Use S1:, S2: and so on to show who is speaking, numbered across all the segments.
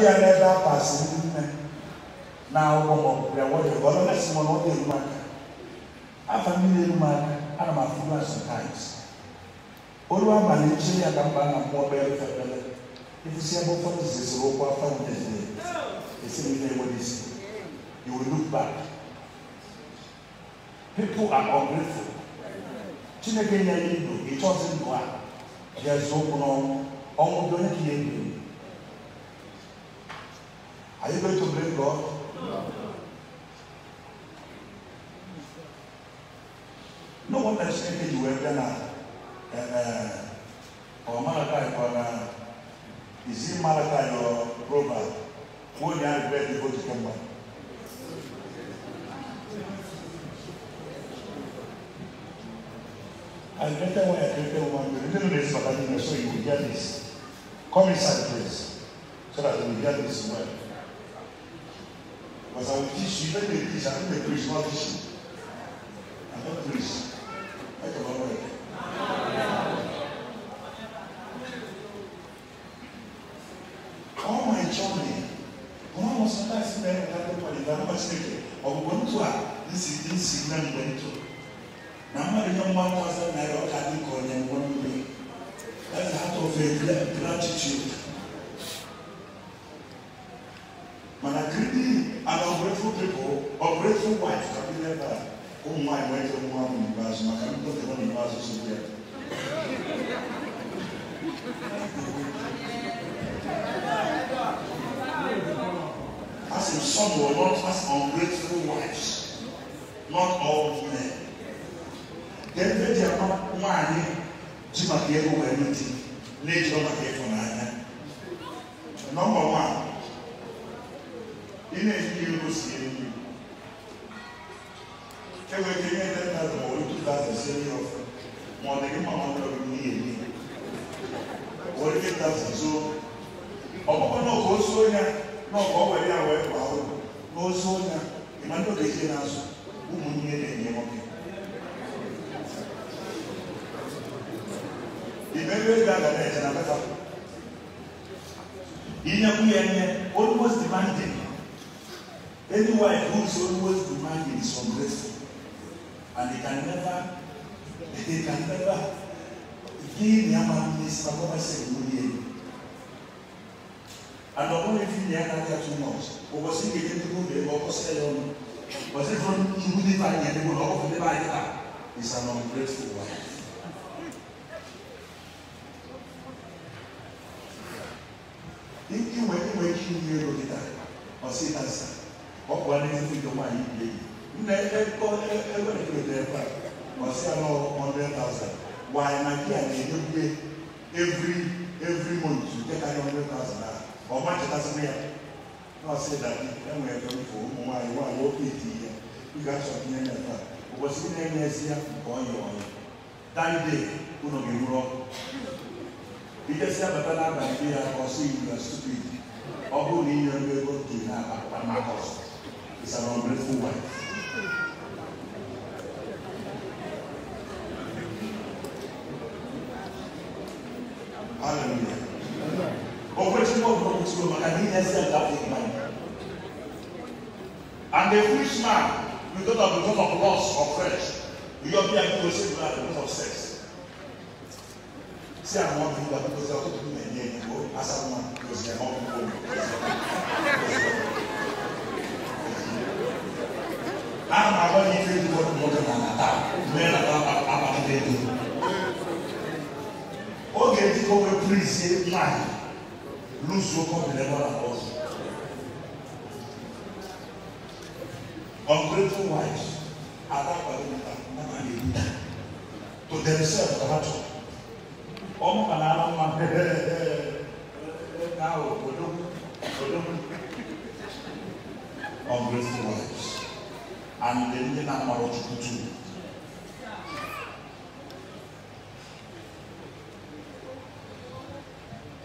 S1: bi a n'ɛda apaase ne nne na awɔ wɔ deɛ wɔyɛ wɔn na si wɔn wɔde enum aka afa mi na enum aka ana ma funu aso taayis olu ama ne nkyɛn yɛ adamba na mmoa bɛyɛ fɛ efisi abɔfra no sisi wɔkɔ afa wɔn esi ne nne wɔde you will look back people are ungrateful chineke nyɛ yi do etu ɔsi do a yɛ zo kunu ɔmo do ne kiyɛ do. ɛbɛda na ɛɛ ɔmalakae kɔ na isi malakae yɔ roba wɔn nyɛ bɛɛ de o ti kɛ mɔ. I greater one, I greater one. The little is but I mean, so you will hear this. Come inside, please, so that you will hear this well. Because I will teach you, let me teach, I think the priest will teach you. I declare gratitude. But a greedy and ungrateful people, ungrateful wife can be like that. Oh my, why do you want me to pass? I can't put the money pass this way. As if some were not as ungrateful wives, not all men. Then they are not one, Jim, I gave away anything na-eji ọbata ịfụ n'anya nọmba wan ị na-eji ego si elu enwere ike ihe ndị nna ma otu dazụ si elu ọfụ ma ọ dịghị mma ọrụ ọrụ n'ihe ni were ike dazụ zuo ọkpọkọ na ọkụ ozu onye na ọkụ ọ ya wee gbaa ụlọ n'ozu onye ịma ndị ogezie n'azụ ụmụnne na-enye nwoke Emmanuel Gada náà Any wife who is always demanding is ungrateful and they can never they can never give their man this na what I say And ọ̀pọ̀ mi fi ní ẹ̀ka ní ẹ̀tún náà ọ̀pọ̀ sí kékeré tó kó bẹ̀rẹ̀ ọkọ̀ sí ẹ̀yọ́ nù. Bọ̀sẹ̀ fún ìwúlẹ̀ báyìí ẹ̀dínwó is an ungrateful wife. ọ bụ n'ezigbo nwaanyị ebe a ọsị anọ 100,000 na nke karịa 100,000 ahụ ọma chetasịrị ya n'ọsị dadi enwere ebe mfe ụmụ nwaanyị nwaanyị oke eti ya ị ga-achọtinye na ebe a ụbọchị na-enye ezi ya nke ọnya ọnya dande ụlọ ga ọkụ abata n'abalị ya ọsị ọhụ na inye ọrụ ego dị n'akpa makọs is an unbreakful wife. Hallelujah. Operation of Promise Room, I didn't accept that in mind. And the rich man, because of the of loss of flesh, you don't be able to save that because of sex se a mão to do that because I want to do my name. Go, as I want, because I want to go. I'm a one year old boy, more than an attack. Men are not about to do. Okay, the cover priest said, man, lose your cup in the water house. Ungrateful wives are not going to be to themselves ọmọ kan náà máa ń bẹ ẹ ká o olú olú ungrateful wives and the ndị na-amara ọchukwu too.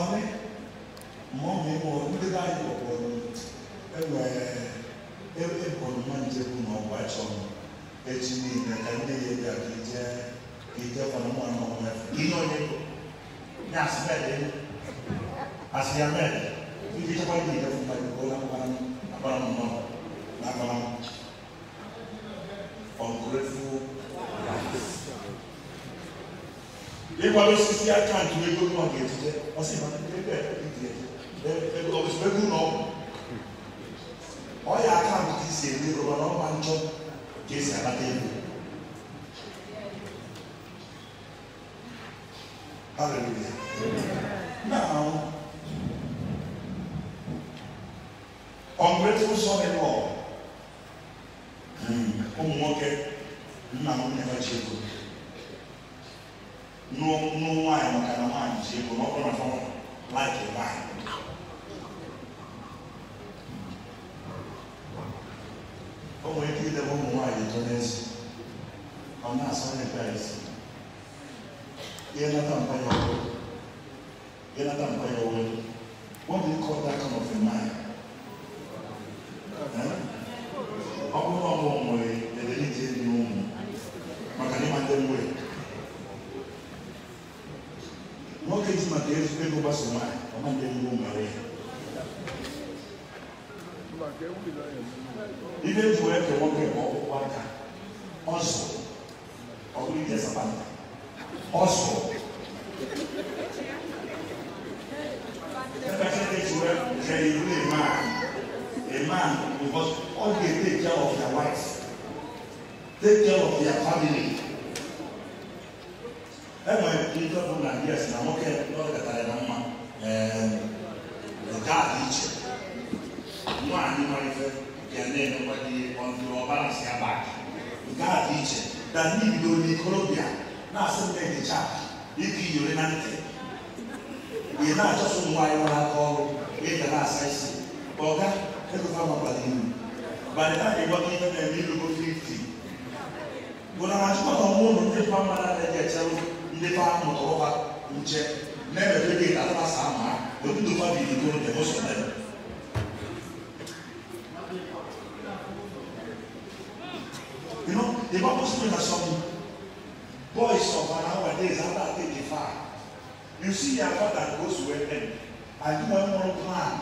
S1: Ọrị ma ọ bụ ịmụ ndị be anyị kpọkpọrọ enwere ebe bọrọma njebụ na ọgba chọrọ echi niile ka ndị ya bịa ka ije ka ije kwana nwa na ọnwa ihe onye nyɛ asebɛ de aseamɛ ibi tí wọn yìí dẹfun báyìí wọn náà wọn abala mọ náà bala mọ ungrateful lives. Ìgbà ló sisi àkáǹtì wo egbò náà kì í ti dẹ ọsẹ ìmọ̀ ní bẹ́ẹ̀ bẹ́ẹ̀ bí diẹ bẹ́ẹ̀ bẹ́ẹ̀ ọ̀sùn bẹ́ẹ̀ gùn náà ọ̀yà àkáǹtì ti sè é ní ìrọ̀lọ́ náà wọn máa Hallelujah. Now, ungrateful son-in-law. ụmụ nwoke nna m nne ha No ego No nwaanyị maka na nwaanyị ji ego n'ọbụ na fọm laik nwaanyị o nwere ike idebe ụmụ nwaanyị eto n'ezi ọ na-asọ ndị pere isi Jonathan Payawo. Jonathan Payawo. What do you call that kind of a man? ọbụrụ ọmụ nwere edelije dị n'ụmụ maka na ịma ndị nwere nwoke ji maka ego gbaso nwaanyị ọma ndị nwere nwere ihe eji wee ke nwoke ọkpụkpụ aka ọzọ ọ bụrụ ije sapanta also the percentage well say you be a man a man because all dey take care of their wives take care of their family ẹ mọ ìjọ fún nàìjíríà sí na mọkẹ lọrọ kẹta ẹ náà mọ ẹ ọgá àti ìjẹ nínú àníwá ìfẹ ìjẹlẹ ẹni wáyé ọdún ọba àti abáàkì ọgá àti ìjẹ dàní ìlú ní kọlọbíà na asem dɛ ne kya eki yore na ntɛ yɛ na akyɛ so mu ayi wɔn akɔ yɛ da na asa esi ɔga ɛkò fa ma pali mu bani na yɛ wɔn yɛ na mi lobo fifty wɔn na ati kɔtɔ wɔn mu ne pa ma na ɛdi ɛkyɛ no ne pa mu tɔwɔ ba nkyɛ na ɛbɛ fɛ de ata sa ama obi do fa bi ko ne mo sɔ dɛ.
S2: You know, the Bible says that some
S1: You see, your father goes to an end. I do one more plan.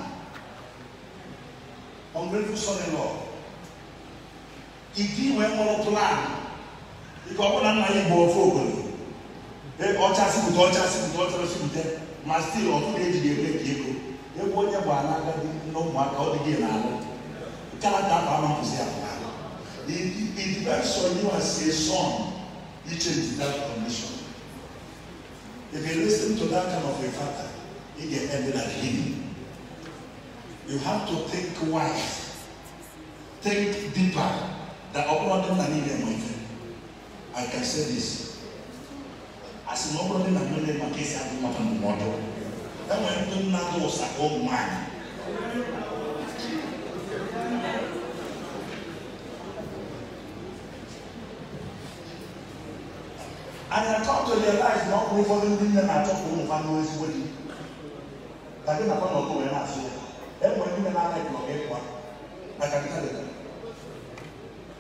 S1: Ungrateful son in law. Ìdí ìwé mọ́rọ́ plan. Ìkọ̀ ọ̀pọ̀ náà máa yí bọ̀ fún ògbọ̀n. Ẹ ọ̀chá síbùtọ̀ ọ̀chá síbùtọ̀ ọ̀chá síbùtẹ̀. Màá still ọ̀tún ní èjì èlé kìí kò. Ewu onye bụ anagadi n'ụmụaka ọ dịghị n'ala. Kalata afọ ama kwụsị afọ. It depends on you as a son. You change that condition. If you listen to that kind of a father, it can end at him. You have to think wise, think deeper. That uploading an even I can say this. As an uploading an even my case, I do not have a model. That when you do not know, it's a whole mind. And I come to realize na ọkùnrin fọdún ndị nne na-achọ ka ụmụ nfa n'ozi ezigbo di. Ka gị nakwa na ọkụnwe na-asụ ya. Enwe ndị nne na-anaghị ka ọ ga-ekwa. Maka nka dị.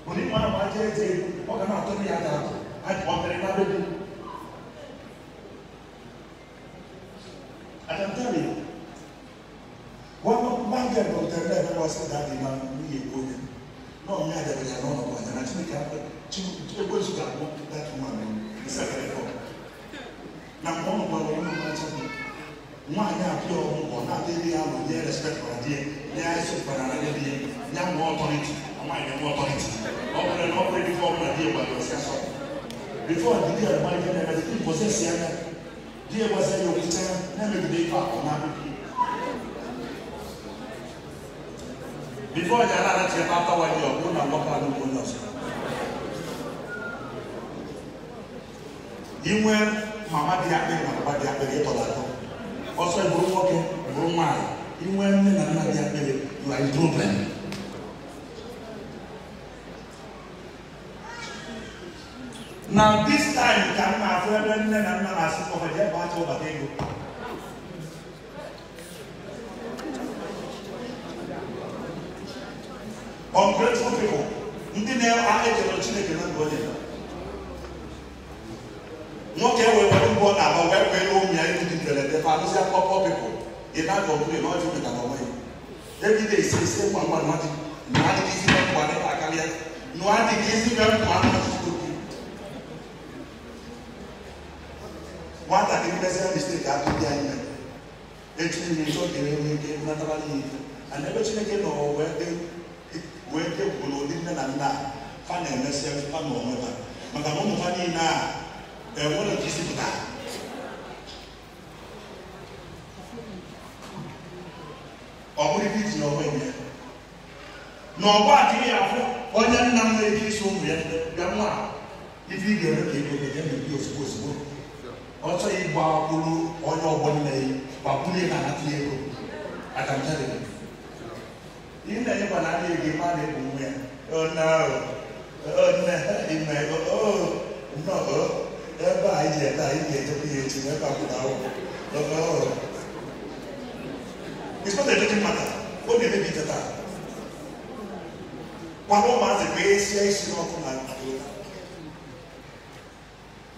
S1: Onye mma na mmadụ eze ọ ga na-atọ ndị ya ga-atọ. Adị ọ mere na bebi. I can tell you, one man get doctor there that was that the man we go there. No, me I never know about that. I think I, she, she was that that woman nsɛbɛrɛ na wɔn bɔ wɔn mu wɔn mu wɔn a yɛ adeɛ wɔn kɔ bi alo yɛ respect wɔn adeɛ so kpara adeɛ bi yɛ yɛ ama authority wɔn a yɛ ama authority ɔpɛrɛ na ɔpɛrɛ bi fɔ ɔpɛrɛ wɔ adeɛ ɔsia sɔ before didi a wɔn ayɛ na ɛdi nkɔ sɛ sia na di yɛ wɔsɛ yɛ wɔn kyɛn na mɛ bi de fa ɔna bi bi before yɛ ala na tiɛ pa pa wa yɛ ɔmo na wɔpa na ɔmo na ɔsɛ. inwe mama dị akpịrị na baba dị akpịrị ịtọrọ atọ ọsọ bụrụ nwoke bụrụ nwaanyị inwe nne na nna dị akpịrị na idroben na this time ka m na-afụ ebe nne na nna na-asị kọfọdụ ebe acha ụbata ego ungrateful people ndị na-echere Chineke na ndụ onye na wɛwɛ yi omi ayi ti tɛlɛ tɛ fa anu sɛ pɔpɔ pipo yina gbɔ kuli yina ɔti mi kakɔ mɛ ebi de se se mu ama nua ti nua ti kisi bɛ kua ne akaliɛ nua ti kisi bɛ kua nua ti to bi wata kiri bɛ sɛ mistake ka to di ayi mɛ etu mi sɔ kiri mi ke nataba ni yi ana bɛ tini ke nɔ wɛ de wɛ de wolo ni mɛ na na fa na ɛmɛ sɛ fa na ɔmɛ na ɔwɔ nyɛ na ɔbɔ adi yɛ afɔ ɔnyɛ nnam na eki so mu yɛ dɛm a ibi yɛ no kebe kebe na ebi osigbo osigbo ɔtɔ yi bɔ akolo ɔnyɛ ɔbɔ nna yi wakulu yɛ kana tiɛ ko atamtɛ de do yi na yɛ kɔna adi yɛ kebe adi yɛ kɔn mu yɛ ɔna ɔna ɛmɛ ɔɔ ɔna ɔ ɛbɛ ayi yɛ ta ayi yɛ tɛbi yɛ ti ɛbɛ akuta wɔ ɔɔ it's not a little matter ó mi bíbi tẹ̀tà pàmò máa ti pé esi esi náà kó máa tó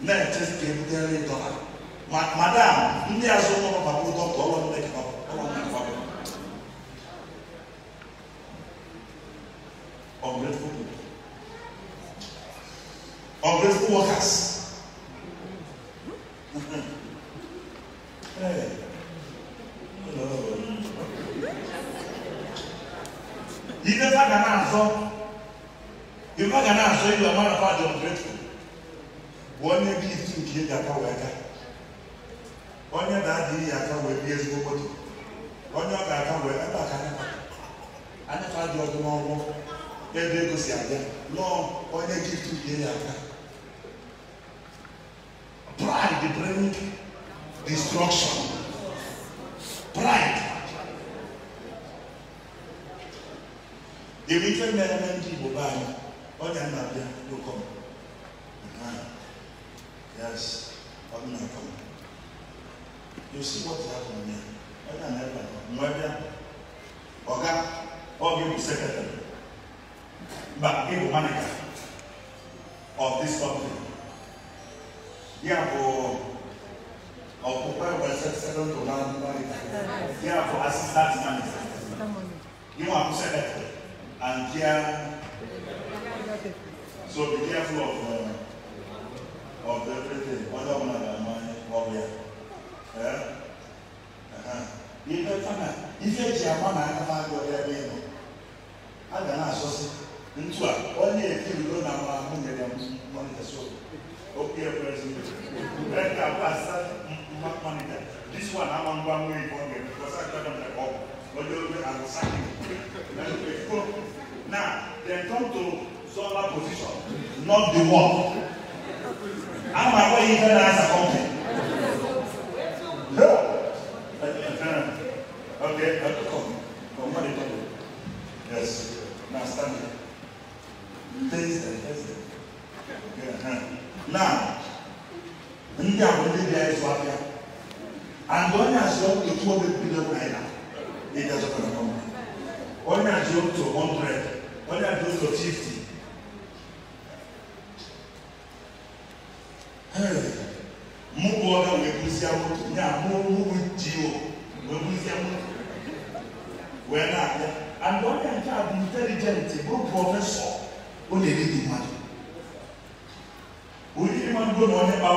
S1: náà ti tẹ̀ ń tẹ́lẹ̀ dọ́là madam ndị azụ ụlọ papa ụtọ ka ọlọ mmekọ ọlọ mmekọ bụ onye bụ isi nke eji aka wee gaa onye na-adịghị ya aka wee bie ezigbo moto onye ọ ga-aka wee ebe aka anyafa dị ọdụ n'ọnwụ ebe ego si abịa lọọ onye gift bie ya aka pride bring destruction pride dịrị ife na ndị Igbo be anyị onye nna bịa n'ụkọ you see what is happening there ẹni àná ẹgbà mọ ẹbí àpò ọgá ọgá ìbò secretary ba ìbò manager of this company yíyá bò ọ̀pọ̀ ẹgbẹ́ secretary tó náà manager yíyá bò assistant manager yíyá bò secretary and yíyá so be careful of uh, of everything other one na my problem yɛbɛ fana ife gye ama na aka fa agorɔ yɛ bɛyɛ no aga na asɔ se a ɔne efi ndo na ma mo nyɛ dɛm mɔnita so opi yɛ pɛrɛ ka ba asa mma mɔnita this one ama mba mo yi bɔ ngɛ because akita dɔm na kɔɔ ɔdi o bɛ ago saki na o ko na dem come to zɔnba position not the one. ama kɔ yi fɛ na asa kɔmpɛ. there. I don't come. Come on, come. Yes. Now stand there. Face them. Face them. Uh-huh. Now, ndị a bụ ndị bịa ịzụ ahịa and onye azụ otu obe bido naira ịdị azụta na kọmpa onye azụ otu 100 onye azụ otu 50 mụ bụ ọga wee bụzie nye mụ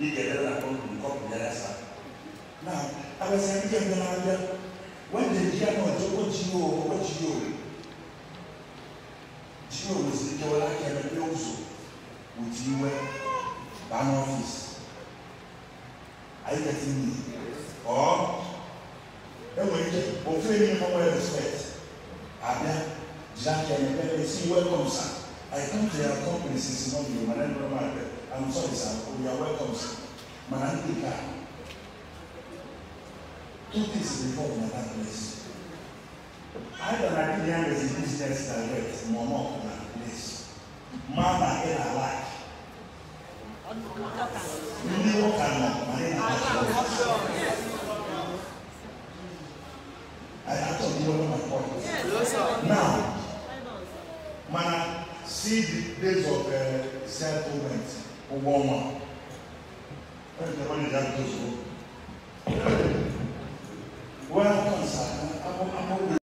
S1: Ike dada kɔn mu kɔn mu yɛrɛ sa. Na abasani jɛ nyɛ n'adɛ. Wɔn de di ano ɔtɔ kɔ dzi o kɔ dzi o. Dzi o wosi kɛ wɔn ban office. Ayi ka ti mi. Ɔɔ ɛwɔ yi dɛ ofe mi mo wɛ respect. Abia gyina kɛ ɛmɛ welcome, ɛsi wɛ kɔm sa. I come to your company since morning, my name is Romano. I'm sorry, sir. We oh, are welcome, sir. Maranatha. Two things before my that place. I don't like the youngest business direct, Mono, and that place. Mama, in our life. Ndị nwoke anọ ma ndị na-achọ. I atọ ndị ọrụ na pọt. Now, mana see the days of uh, settlement. ụgwọ ọnwa a